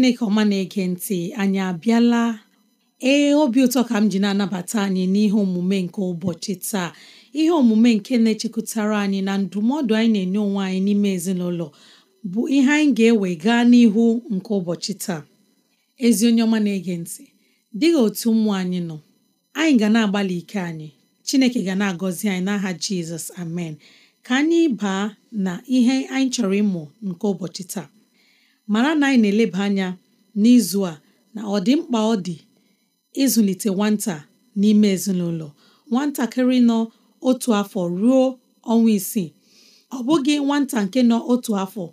chineke ọma na-ege ntị anyị abịala ee obi ụtọ ka m ji na-anabata anyị n'ihe omume nke ụbọchị taa ihe omume nke na-echekwutara anyị na ndụmọdụ anyị na-enye onwe anyị n'ime ezinụlọ bụ ihe anyị ga-ewe gaa n'ihu nke ụbọchị taa ezi onye ọma na-ege ntị dịghị otu ụmụ anyị nọ anyị ga na-agbalị ike anyị chineke ga na-agọzi anyị n'aha jizọs amen ka anyị baa na ihe anyị chọrọ ịmụ nke ụbọchị taa mara na anyị na-eleba anya n'izu a na ọ dị mkpa ọ dị ịzụlite nwata n'ime ezinụlọ nwatakịrị nọ otu afọ ruo ọnwa isii ọ bụghị nwata nke nọ otu afọ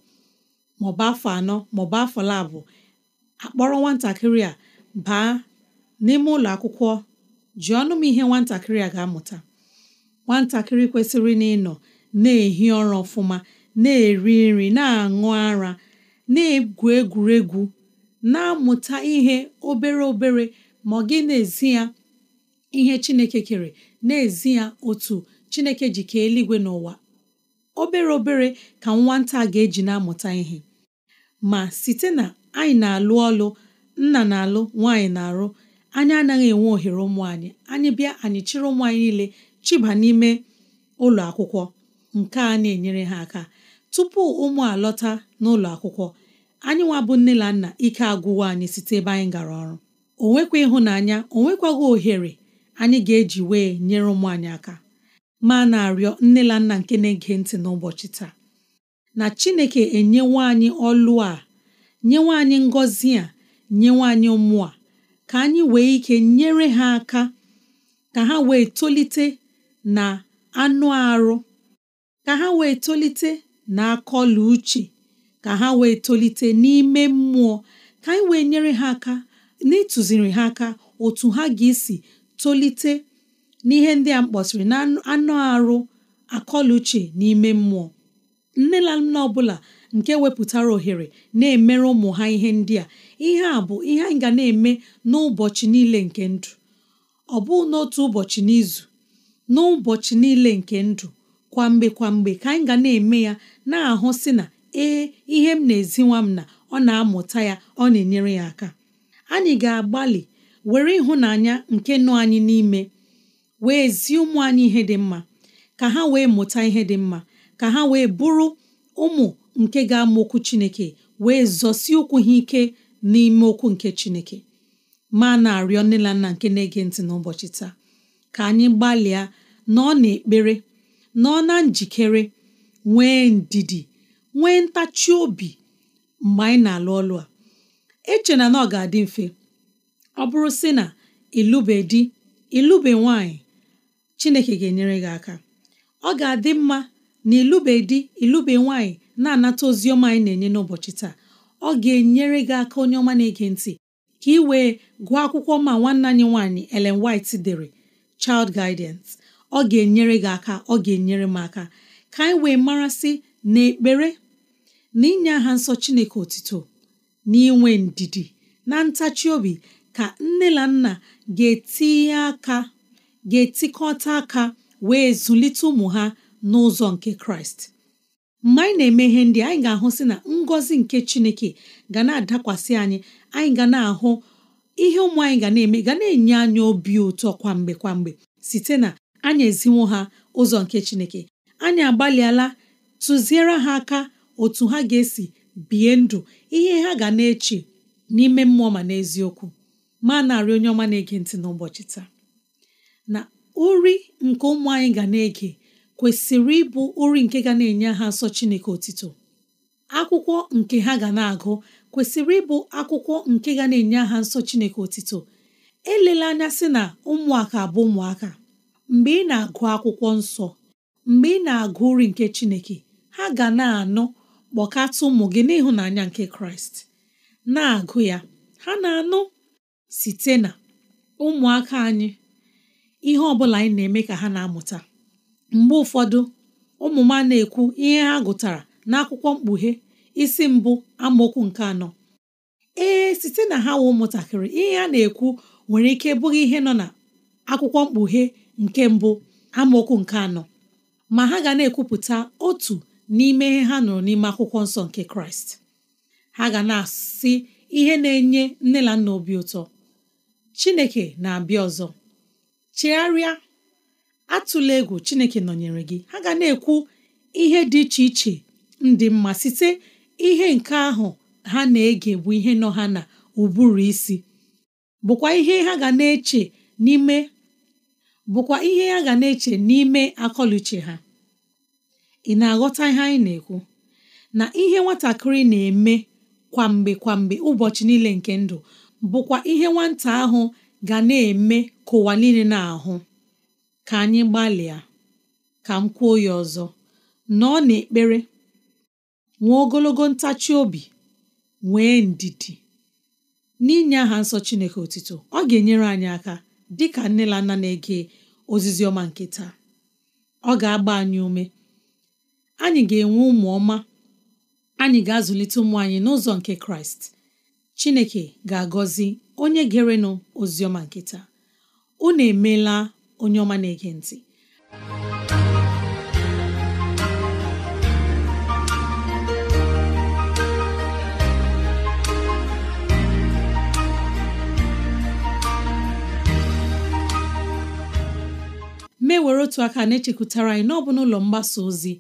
maọbụ afọ anọ maọbụ afọ labụ akpọrọ nwatakịrị a baa n'ime ụlọ akwụkwọ ji ọnụ m ihe nwatakịrị a ga-amụta nwatakịrị kwesịrị na ịnọ na-ehi ọrụ ọfụma na-eri nri na-aṅụ ara na-egwu egwuregwu na-amụta ihe obere obere ma ọ gị na-ezi ya ihe Chineke kere na-ezi ya otu Chineke ji kee eluigwe n'ụwa obere obere ka nwata ga-eji na-amụta ihe ma site na anyị na-alụ ọlụ nna na-alụ nwaanyị na-arụ anyị anaghị enwe ohere ụmụ anyị anyị bịa anyị chịrị ụmụ anyị niile chiba n'ime ụlọ akwụkwọ nke a na-enyere ha aka tupu ụmụ alọta n'ụlọ akwụkwọ anyị nwabụ bụ nne na nna ike agwụwa anyị site ebe anyị gara ọrụ o nwekwa ịhụnanya o nwekwaghị ohere anyị ga-eji wee nyere ụmụ anyị aka ma na-arịọ nne na nna nke na-ege ntị n'ụbọchị taa na Chineke enyewe anyị ọlụ a nyewe anyị ngọzi a nyewe anyị ụmụ a ka anyị wee ike nyere ha aka ka ha wee tolite na anụ arụ ka ha wee tolite na-akọlụ uche ka ha wee tolite n'ime mmụọ ka anyị wee nyere ha aka n'ịtụziri ha aka otu ha ga-esi tolite n'ihe ndị a mkpọsịrị na anụ arụ akọlụ uche n'ime mmụọ nne na nna ọbụla nke wepụtara ohere na-emere ụmụ ha ihe ndị a ihe a bụ ihe anyị ga na-eme n'ụbọchị niile nke ndụ ọ bụ n'otu ụbọchị n'izu n'ụbọchị niile nke ndụ kwamgbe kwamgbe ka anyị ga na-eme ya na-ahụ si na ee ihe m na eziwa m na ọ na-amụta ya ọ na-enyere ya aka anyị ga-agbalị were ịhụnanya nke nọ anyị n'ime wee zi ụmụ anyị ihe dị mma ka ha wee mụta ihe dị mma ka ha wee bụrụ ụmụ nke ga-ama okwu Chineke wee zọsi ụkwụ ha ike n'ime okwu nke Chineke ma na-arịọ nne na nna nke na-ege ntị n'ụbọchị taa ka anyị gbalịa na ọ na ekpere. nọọ na njikere nwee ndidi nwee ntachi obi mgbe anyị na-alụ ọlụ a eche na na ọ ga-adị mfe ọ bụrụ sị na ịlụbe di ịlụbe nwanyị Chineke ga-enyere gị aka ọ ga-adị mma na ịlụbe di ịlụbe nwanyị na-anata ozi ọma anyị na-enye n'ụbọchị taa ọ ga-enyere gị aka onye ọma na-ege ntị ka ị wee gụọ akwụkwọ ma nwanne anyị nwaanyị Ellen White dere Child Guidance ọ ga-enyere gị aka ọ ga-enyere m aka ka anyị wee marasị na ekpere na inye aha nsọ Chineke otito na inwe ndidi na ntachi obi ka nne na nna ga-etinye aka ga-etikọta aka wee zụlite ụmụ ha n'ụzọ nke Kraịst mgbe anyị na-eme ihe ndị anyị ga-ahụ sị na ngọzi nke Chineke ga na-adakwasị anyị anyị ga na-ahụ ihe ụmụ anyị ga na-eme ga na-enye anyị obi ụtọ kwamgbe kwamgbe site na anyị eziwo ha ụzọ nke chineke anyị agbalịala tụziere ha aka otu ha ga-esi bie ndụ ihe ha ga na-eche n'ime mmụọ ma n'eziokwu ma narị onye ọma na-ege ntị n'ụbọchị taa na uri nke ụmụ anyị ga na-ege kwesịrị ịbụ uri nke ga na-enye ha nsọ Chineke otito akwụkwọ nke ha ga na-agụ kwesịrị ịbụ akwụkwọ nke ga na-enye ha nsọ Chineke otito elela anya sị na ụmụaka bụ ụmụaka mgbe ị na-agụ akwụkwọ nsọ mgbe ị na-agụ uri nke Chineke ha ga na-anụ kpọkata ụmụ gị n'ịhụnanya nke Kraịst na-agụ ya ha na-anụ site na ụmụaka anyị ihe ọbụla anyị na-eme ka ha na-amụta mgbe ụfọdụ ụmụ m na-ekwu ihe ha gụtara n'akwụkwọ mkpughe isi mbụ amaokwu nke anọ ee site na ha wụ ụmụntakịrị ihe ha na-ekwu nwere ike bụghị ihe nọ na akwụkwọ mkpughe nke mbụ amaokwu nke anọ ma ha ga na-ekwupụta otu n'ime ihe ha nụrụ n'ime akwụkwọ nsọ nke kraịst ha ga na-asị ihe na-enye nne na nna obi ụtọ chineke na-abịa ọzọ chegharịa atụla egwu chineke nọnyere gị ha ga na-ekwu ihe dị iche iche ndị mma site ihe nke ahụ ha na-ege bụ ihe nọ ha na ụbụrụ isi bụkwa ihe ha ga na-eche n'ime bụkwa ihe ya ga na-eche n'ime akọluche ha ị na-aghọta ihe anyị na-ekwu na ihe nwatakịrị na-eme kwamgbe kwamgbe ụbọchị niile nke ndụ bụkwa ihe nwata ahụ ga na-eme ka ụwa niile na-ahụ ka anyị gbalịa ka m kwuo ya ọzọ na n'ekpere nwee ogologo ntachi obi nwee ndidi n'inye aha nsọ Chineke otito ọ ga-enyere anyị aka dịka nne na nna na-ege ozizi ọma nke taa ọ ga-agba anyị ume anyị ga-enwe ụmụ ọma anyị ga-azụlite ụmụ anyị n'ụzọ nke kraịst chineke ga-agọzi onye gerenụ oziọma nkịta. taa unu emela onye ọma na-ege mee were otu aka na-echekwutara anyị n'ọbụ n'ụlọ mgbasa ozi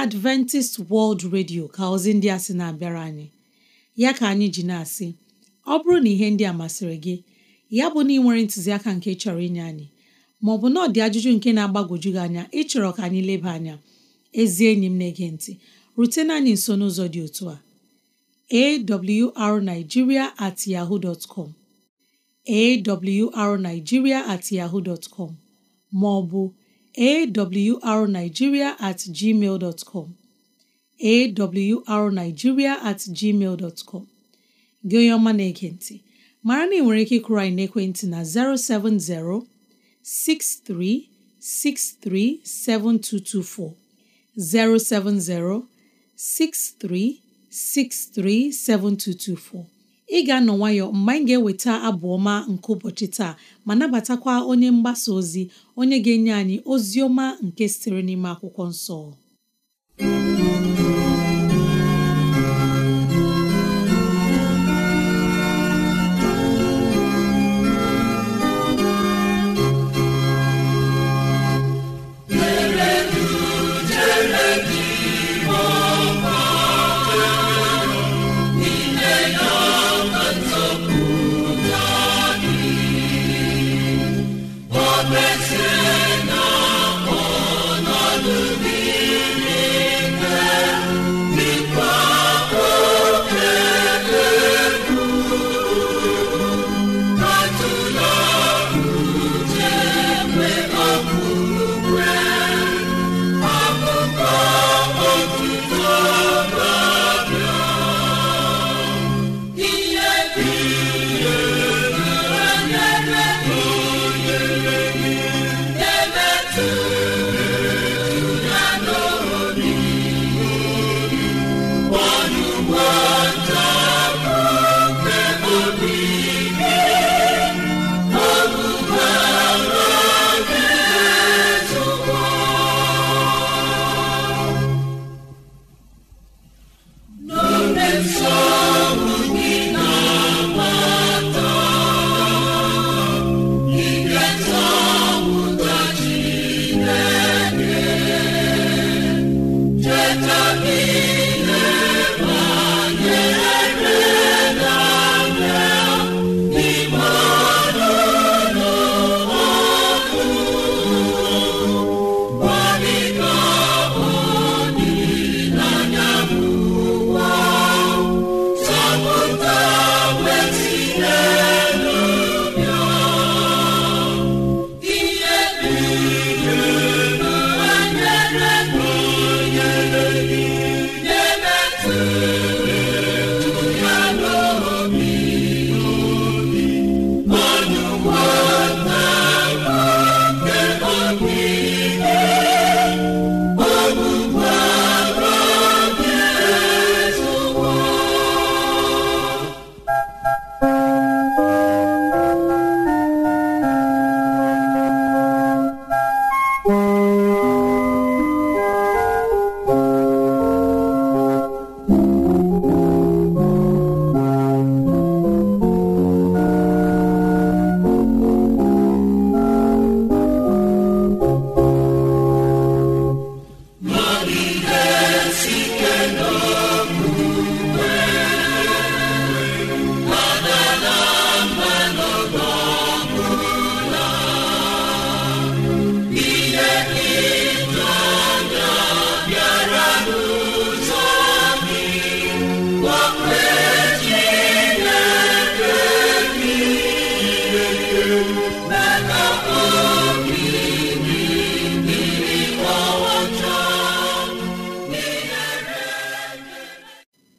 Adventist World Radio ka ozi ndị a sị na-abịara anyị ya ka anyị ji na-asị ọ bụrụ na ihe ndị a masịrị gị ya bụ na ị nwere ntụziaka nke chọrọ inye anyị maọbụ na ọdị ajụjụ nke na-agbagwoju gị anya ịchọrọ ka anyị leba anya ezi enyi m na-ege ntị rutena anyị nso n'ụzọ dị otu a awrnigeria at yahoo dot com awrnigeria at yahoo dot com ma ọ bụ awrnigeria at gmail dot com awrnigeria at gmail dot com gị onye ọma na-ege mara na ị nwere ike ịkụrụ anyị na 070 6363 7224 070 6363 7224 ị ga-anọ nwayọ mgbe anyị ga-eweta abụ ọma nke ụbọchị taa ma nabatakwa onye mgbasa ozi onye ga-enye anyị ozi ọma nke sitere n'ime akwụkwọ nsọ celebrate. nsọ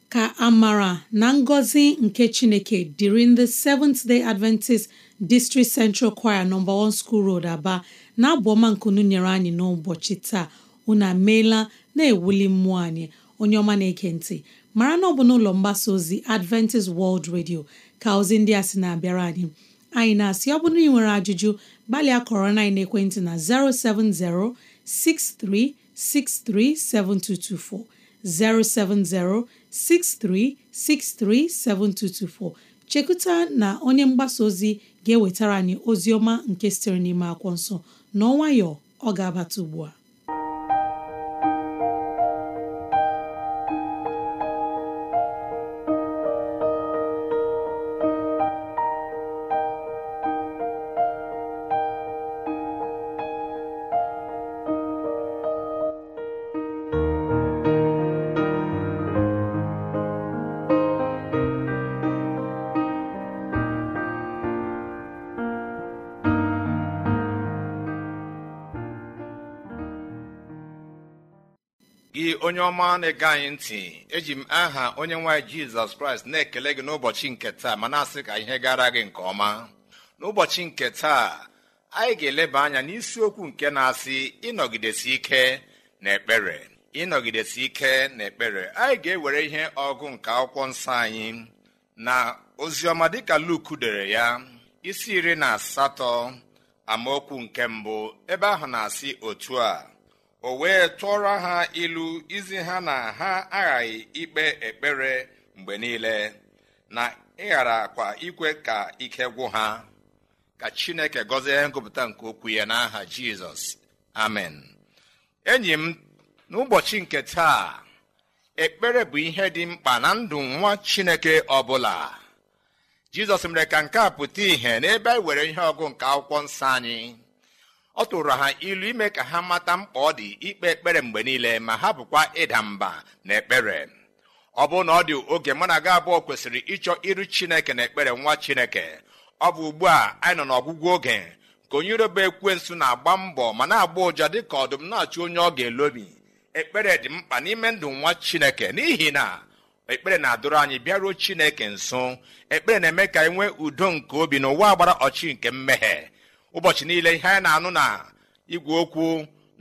ka amara na ngọzi nke chineke dịrị ndị Seventh Day Adventist District Central Choir No. 1 School Road Aba na-abụ ọma nkunu nyere anyị n'ụbọchị taa unu ameela na-ewuli mmụọ anyị onye ọma na ekentị mara na ọ bụ n'ụlọ mgbasa ozi Adventist World Radio ka ozi ndị a sị na-abịara anyị anyị na-asị ọ bụ na nwere ajụjụ gbalịa kọrọ na ekwentị na 070 6363 7224 070 6363 7224 chekuta na onye mgbasa ozi ga-ewetara anyị ozi ọma nke sitere n'ime akwụkwọ nsọ n'ọnwayọ ọ ga-abata ugbu a gị onye ọma na-ege anyị ntị eji m aha onye nwaanyị jizọs kraịst na-ekele gị n'ụbọchị nke taa ma na-asị ka ihe gara gị nke ọma n'ụbọchị nke taa anyị ga-eleba anya n'isiokwu nke na-asị ịnọgidesi ike na ekpere ịnọgidesi ike na ekpere anyị ga-ewere ihe ọgụ nke akwụkwọ nsọ anyị na oziọma dịka Luk dere ya isi iri na asatọ amaokwu nke mbụ ebe ahụ na-asị otu a o wee tụọrọ ha ilu izi ha na ha aghaghị ikpe ekpere mgbe niile na ịghara akwa ikwe ka ike gwụ ha ka chineke gọzie ngụpụta nke okwu ya n'aha jizọs amen enyi m n'ụbọchị nke taa ekpere bụ ihe dị mkpa na ndụ nwa chineke ọbụla jizọs mere ka nke a pụta ìhè n'ebe e were ihe ọgụ nke akwụkwọ nsọ anyị ọ tụrụ ha ilu ime ka ha mata mkpa ọ dị ikpe ekpere mgbe niile ma ha bụkwa ịda mba na ekpere ọ bụrụ na ọ dị oge mana aga gị abụọ kwesịrị ịchọ iru chineke na ekpere nwa chineke ọ bụ ugbu a anyị nọ n'ọgwụgwụ oge ka onye iroba ekwensu na-agba mbọ ma na-agba ụja dị ka ọdụm na-achụ onye ọ ga-elobi ekpere dị mkpa n'ime ndụ nwa chineke n'ihi na ekpere na-adụrụ anyị bịaruo chineke nso ekpere na-eme ka anyị e nwee udo nke obi n'ụwa gbara ọchị nke mmehie ụbọchị niile ihe anyị na-anụ na igwe okwu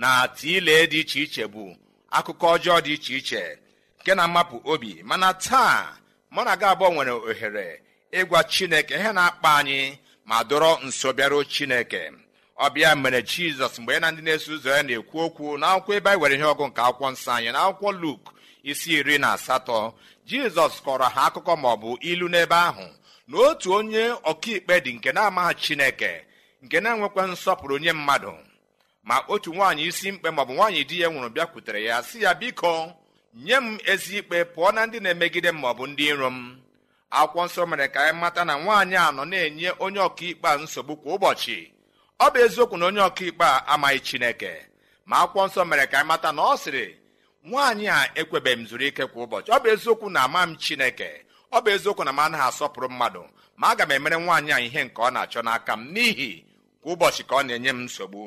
na tiile dị iche iche bụ akụkọ ọjọọ dị iche iche nke na-amapụ obi mana taa mụ na gị abụọ nwere ohere ịgwa chineke ihe na-akpa anyị ma dọrọ nso bịaruo chineke ọbịa mere jizọs mgbe ya na ndị na-eso ụzọ ya na-ekwu okwu na akwụkwọ ebe anyị were ihe ọgụ nke akwụkwọ nsọ anyị na akwụkwọ luk isi iri na asatọ jizọs kọrọ ha akụkọ maọbụ ilu n'ebe ahụ na otu onye ọkaikpe dị nke na-amaghị chineke nke na-enwekwa nsọpụrụ onye mmadụ ma otu nwaanyị isi mkpe maọbụ nwaanyị di ya nwụrụ bịakwutere ya sị ya biko nye m ezi ikpe pụọ na ndị na-emegide m maọbụ ndị iro m akwụkwọ nsọ mere ka anyị e mata na nwaanyị a nọ na-enye onye ọkaikpe a nsogbu kwa ụbọchị ọ bụ eziokwu na onye ọkaikpe a amaghị chineke ma akwụkwọ nsọ mere ka anyị e mata na ọ sịrị nwaanyị a ekwebeghị m zuru ike kwa ụbọchị ọ bụ eziokwu na ama m chineke ọ bụ eziokwu na m anaghị asọpụrụ mmadụ ma aga m emere nwaanyị a ihe nke ọ na-achọ n'aka m n'ihi kwa ụbọchị ka ọ na-enye m nsogbu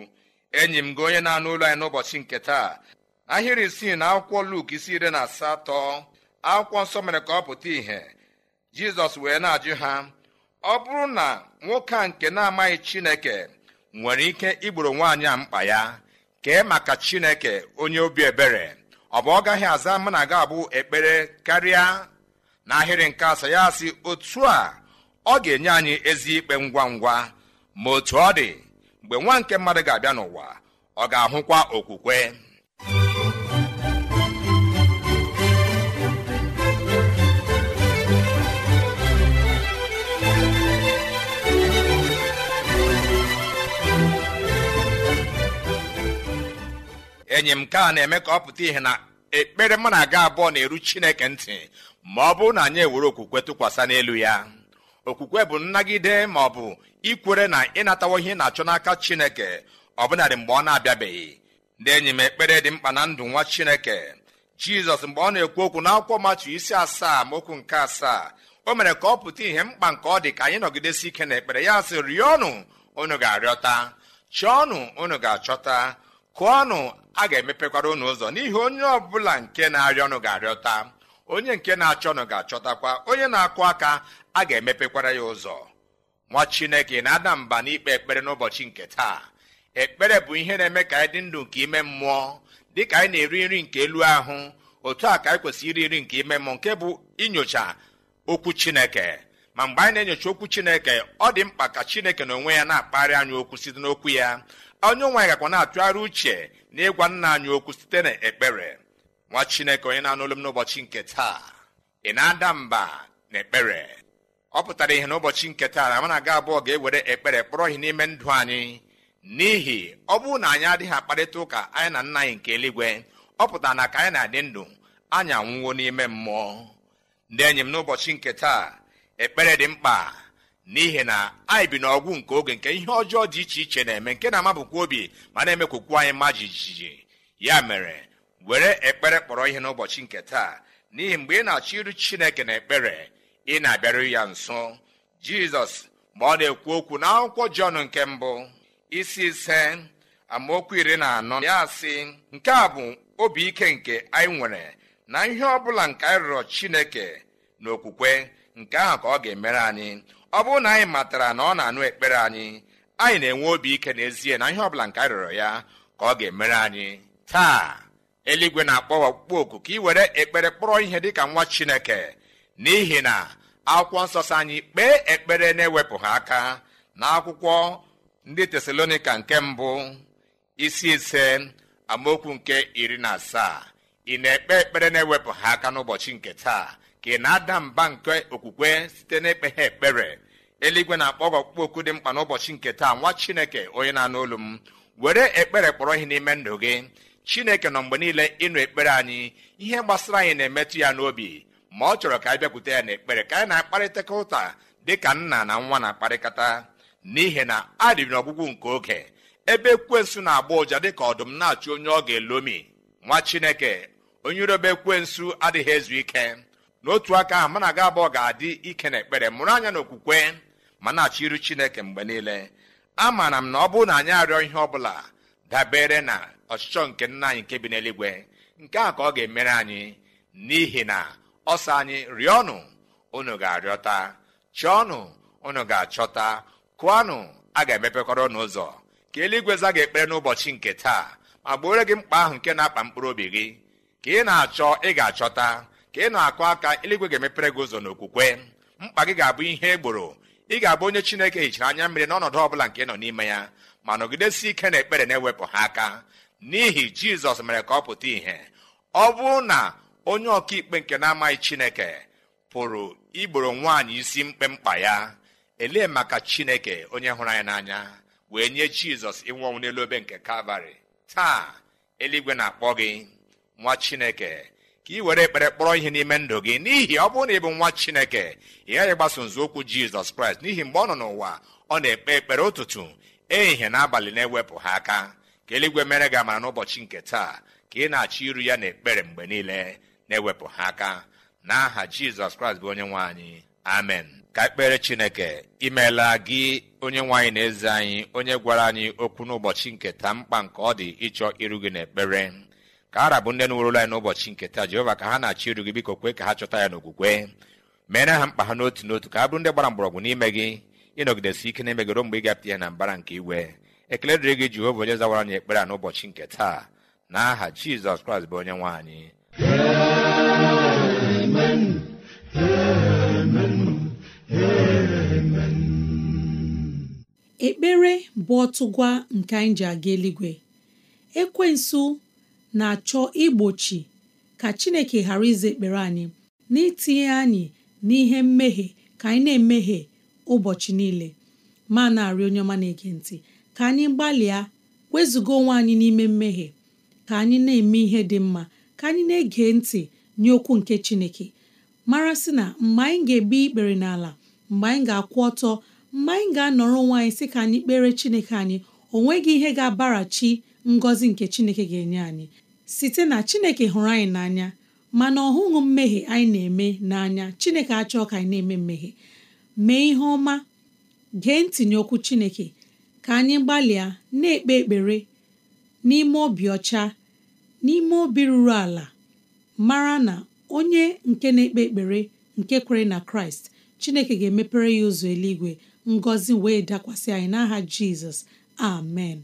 enyi m gị onye na-anụ ụlọ anyị n'ụbọchị nke taa ahịrị isii na akwụkwọ Luk isi iri na asatọ akwụkwọ nsọ mere ka ọ pụta ìhè jizọs wee na-ajụ ha ọ bụrụ na nwoke a nke na-amaghị chineke nwere ike igboro nwaanyị a mkpa ya kee maka chineke onye obi ebere ọ bụ ọ gaghị aza mụ na ga abụ ekpere karịa n'ahịrị nke asaa ya si otu a ọ ga-enye anyị ezi ikpe ngwa ngwa ma otu ọ dị mgbe nwa nke mmadụ ga-abịa n'ụwa ọ ga-ahụkwa okwukwe enyi m nke na-eme ka ọ pụta ihe na ekpere mụ na aga abụọ na-eru chineke ntị ma ọ bụ na anyị ewere okwukwe tụkwasị n'elu ya okwukwe bụ nnagide ma ọ bụ ikwere na ịnatawo ihe na-achọ n'aka chineke ọbụnadị mgbe ọ na-abịabeghị ndị enyi m ekpere dị mkpa na ndụ nwa chineke jizọs mgbe ọ na-ekwu okwu akwụkwọ matu isi asaa ma okwu nke asaa o mere ka ọ pụta ihe mkpa nke ọ dị ka anyị nọgidesi ike na ekpere ya sị rịọnụ unu ga-arịọta chọọnụ unu ga-achọta kụọnụ a ga-emepekwara unu ụzọ n'ihi onye ọbụla nke na-arịọ ọnụ ga-arịọta onye nke na-achọnụ ga-achọtakwa onye na-akụ aka a ga-emepekwara ya ụzọ nwa chineke na-ada mba n'ikpe ekpere n'ụbọchị nke taa ekpere bụ ihe na-eme ka anyị dị ndụ nke ime mmụọ dị ka anyị na-eri nri nke elu ahụ otu a ka anyị kwesịrị iri nri nke ime mmụọ nke bụ inyocha okwu chineke ma mgbe anyị na-enyocha okwu chineke ọ dị mkpa ka chineke na onwe ya na-akpagharị anyị okwu site n'okwu ya onye nwanyị gakwa na-atụgharị uche na ịgwa nna anyị okwu site na ekpere nwa chineke onye na-anụ m n'ụbọchị nke taa ị na-ada mba na ekpere ọ pụtara ihe n'ụbọchị nke taa na mana aga abụọ ga-ewere ekpere kpọrọ ihe n'ime ndụ anyị n'ihi ọ bụrụ na anyị adịghị akparịta ụka anyị na nna anyị nke eluigwe ọ pụtara na ka anyị na-adị ndụ anyị anwụwo n'ime mmụọ ndị enyi m n'ụbọchị nke taa ekpere dị mkpa n'ihi na anyị bi n'ọgwụ nke oge nke ihe ọjọọ dị iche iche na-eme nke na-amabụkwa obi ma na-emekwukwu anyị mma jijiji ya mere were ekpere kpọrọ ihe n'ụbọchị nke taa n'ihi mgbe ị na-achọ iru chineke na ekpere ị na-abịaru ya nso jizọs ma ọ na-ekwu okwu n'akwụkwọ jọn nke mbụ isi ise amaokwu iri na anọ ya sị nke a bụ obi ike nke anyị nwere na ihe ọ bụla nke anyị rụrụ chineke na okwukwe nke ahụ ka ọ ga-emere anyị ọ bụrụ na anyị matara na ọ na-anụ ekpere anyị anyị na-enwe obi ike n'ezie na ihe ọbụla nke anyị rịọrọ ya ka ọ ga-emere anyị taa eluigwe na-akpọ wakpukpọ oku ka ị were ekpere kpọrọ ihe dị ka nwa chineke n'ihi na akwụkwọ nsọ sị anyị kpee ekpere na-ewepụghị aka na akwụkwọ ndị tesalonika nke mbụ isi ise amaokwu nke iri na asaa ị na-ekpe ekpere na-ewepụghị aka n'ụbọchị nke taa ka ị na-ada mba nke okwukwe site ha ekpere eluigwe na-akpọ ọkpụkpọ oku dị mkpa n'ụbọchị nke taa nwa chineke onye na-anụ olu m were ekpere kpọrọ ihe n'ime ndụ gị chineke nọ mgbe niile ịnụ ekpere anyị ihe gbasara anyị na-emetụ ya n'obi ma ọ chọrọ ka anyị bịakwute ya n'ekpere ka anyị na-akparịtaka ụta dị ka nna na nwa na-akparịkata n'ihi na adịrị n'ọgwụgwụ nke oge ebe ekwensu na-agba ụja dịka ọdụm na-achụ onye ọ ga-elomi nwa chineke onye irobe ekwensu adịghị ezu ike n'otu aka ahụ mana aga abụọ ga-adị ike na ekpere mụrụ anya na okwukwe ma na-achọ iru chineke mgbe niile amaara m na ọ bụrụ na anyị arịọ ihe ọ bụla dabere na ọchịchọ nke nna anyị nke bi n'eluigwe nke a ka ọ ga-emere anyị n'ihi na ọsọ anyị rịọnụ unu ga-arịọta chọọnụ unu ga-achọta kụọnụ a ga-emepekọrọ unu ụzọ ka eluigwe za ga ekpere n'ụbọchị nke taa ma gbuore gị mkpa ahụ nke na-akpa mkpụrụ obi gị ka ị na-achọ ị ga-achọta ka ị na-akụ aka eluigwe ga-emepere gị ụzọ n'okwukwe mkpa gị ga-abụ ihe egboro ị ga-abụ onye chineke hichara anya mmiri n'ọnọdụ ọbụla nke nọ n'ime ya ma nọgidesi ike na ekpere na-ewepụ ha aka n'ihi jizọs mere ka ọ pụta ìhè ọ bụrụ na onye ọkaikpe nke na-amaghị chineke pụrụ igboro nwaanyị isi mkpemkpa ya elee maka chineke onye hụrụ anyị n'anya wee nye jizọs ịnwụ ọnwụ n'elu obe nke kalvarị taa eluigwe na-akpọ gị nwa chineke ka ị were ekpere kpọrọ ihe n'ime ndụ gị n'ihi ọ bụrụ na ị bụ nwa chineke ị gaghị gbaso nzọụkwụ jizọs kraịst n'ihi mgbe ọ nọ n'ụwa ọ na-ekpe ekpere ụtụtụ ehihie na abalị na-ewepụ ha aka ka eluigwe mere gị amara n'ụbọchị nke taa ka ị na-achọ iru ya n'ekpere mgbe niile na-ewepụ ha aka n'aha jizọs kraịst bụ onye nwe anyị amen ka ekpere chineke imeela gị onye nwe anyị na eze anyị onye gwara anyị okwu n'ụbọchị nke taa mkpa nke ọ dị ịchọ iru gị n'ekpere ka ara bụ ndị nwerụla anyị n'ụbọchị nke taa jehova ka ha na-achọ iru gị biko kwee ka ha chọta ya n'okwukwe meere ha mkpa ha n'otu n'otu ka ha bụrụ ndị gbara mgbọrọgwụ n'ime gị ịnọgidesi ike na-emegoro mgbe ị gapụta ihe na mbara nke iwe ekele dịrị gị Jehova onye zawara anyị ekpere a n'ụbọchị nke taa na aha Jizọs Kraịst bụ onye nwe anyị ekpere bụ ọtụgwa nke anyị ji aga eluigwe ekwensu na-achọ igbochi ka chineke ghara ize ekpere anyị n'itinye anyị n'ihe mmehie ka anyị na-emehie ụbọchị niile ma na-arị onye ọma na-ege ntị ka anyị gbalịa wezuga onwe anyị n'ime mmehie ka anyị na-eme ihe dị mma ka anyị na-ege ntị nye okwu nke Chineke mara sị na mgbe anyị ga-ebu ikpere n'ala mgbe anyị ga-akwụ ọtọ mgbe anyị ga-anọrọ onwe anyị sị ka anyị kpere Chineke anyị o nweghị ihe ga-abarachi ngọzi nke Chineke ga-enye anyị site na Chineke hụrụ anyị n'anya mana ọ hụghị mmehie anyị na-eme n'anya Chineke achọọ ka anyị na-eme mmehie mee ihe ọma gee ntinye okwu Chineke ka anyị gbalịa na-ekpe ekpere n'ime obi ọcha n'ime obi ruru ala mara na onye nke na-ekpe ekpere nke kwere na Kraịst Chineke ga-emepere ya ụzọ eluigwe ngọzi wee dakwasị anyị n'aha Jizọs amen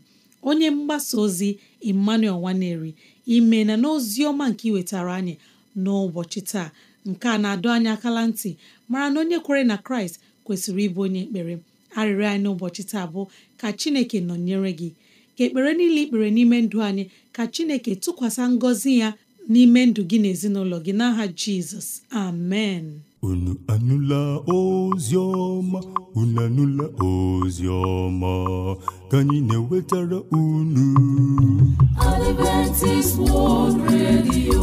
onye mgbasa ozi Emmanuel Nwaneri ime na n'ozi ọma nke iwetara anyị n'ụbọchị taa nke a na-adọ anyị akala ntị mara na onye kwere na Kraịst kwesịrị ịbụ onye ekpere arịrịọ anyị n'ụbọchị taa bụ ka chineke nọnyere gị ka ekpere niile ikpere n'ime ndụ anyị ka chineke tụkwasị ngọzi ya n'ime ndụ gị na ezinụlọ gị n'aha jizọs amen unu anụla ozi ọma unu anụla ozi ọma ka anyị na-ewetara unu Adventist World Radio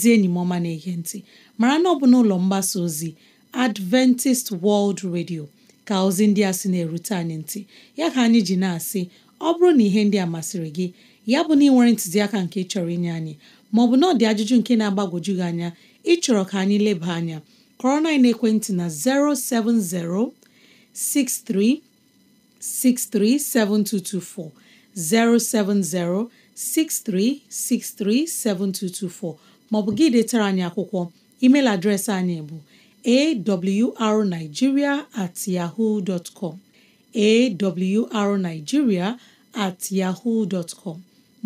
ezi enyi m ọma na-ege ntị mara na ọ bụ n'ụlọ mgbasa ozi Adventist World Radio ka ozi ndị a sị na-erute anyị ntị ya ka anyị ji na-asị ọ bụrụ na ihe ndị a masịrị gị ya bụ na ị nwere ntụziaka nke chọrọ inye anyị maọbụ na ọ dị ajụjụ nke na-agbagwoju gị anya ịchọrọ ka anyị leba anya kọrọ na ekwentị na 07063637224 maọbụ gị detara anyị akwụkwọ email adreesị anyị bụ awrnigeria at yaho dot com at yaho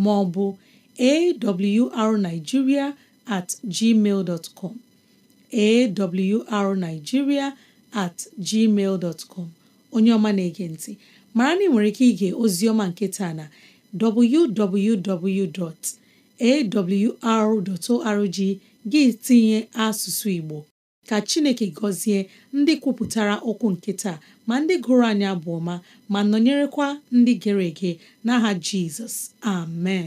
maọbụ awrnigeria at com at gmail onye ọma na-ege ntị mara na ị nwere ike ige ozi ọma nke taa na www. awr.org gị tinye asụsụ Igbo ka Chineke gọzie ndị kwupụtara okwu nke ma ndị gụrụ anya bụ ọma ma nọnyerekwa ndị gere ege n'aha Jizọs amen